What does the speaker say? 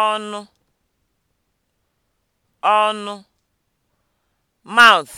ọnụ ọnụ mouth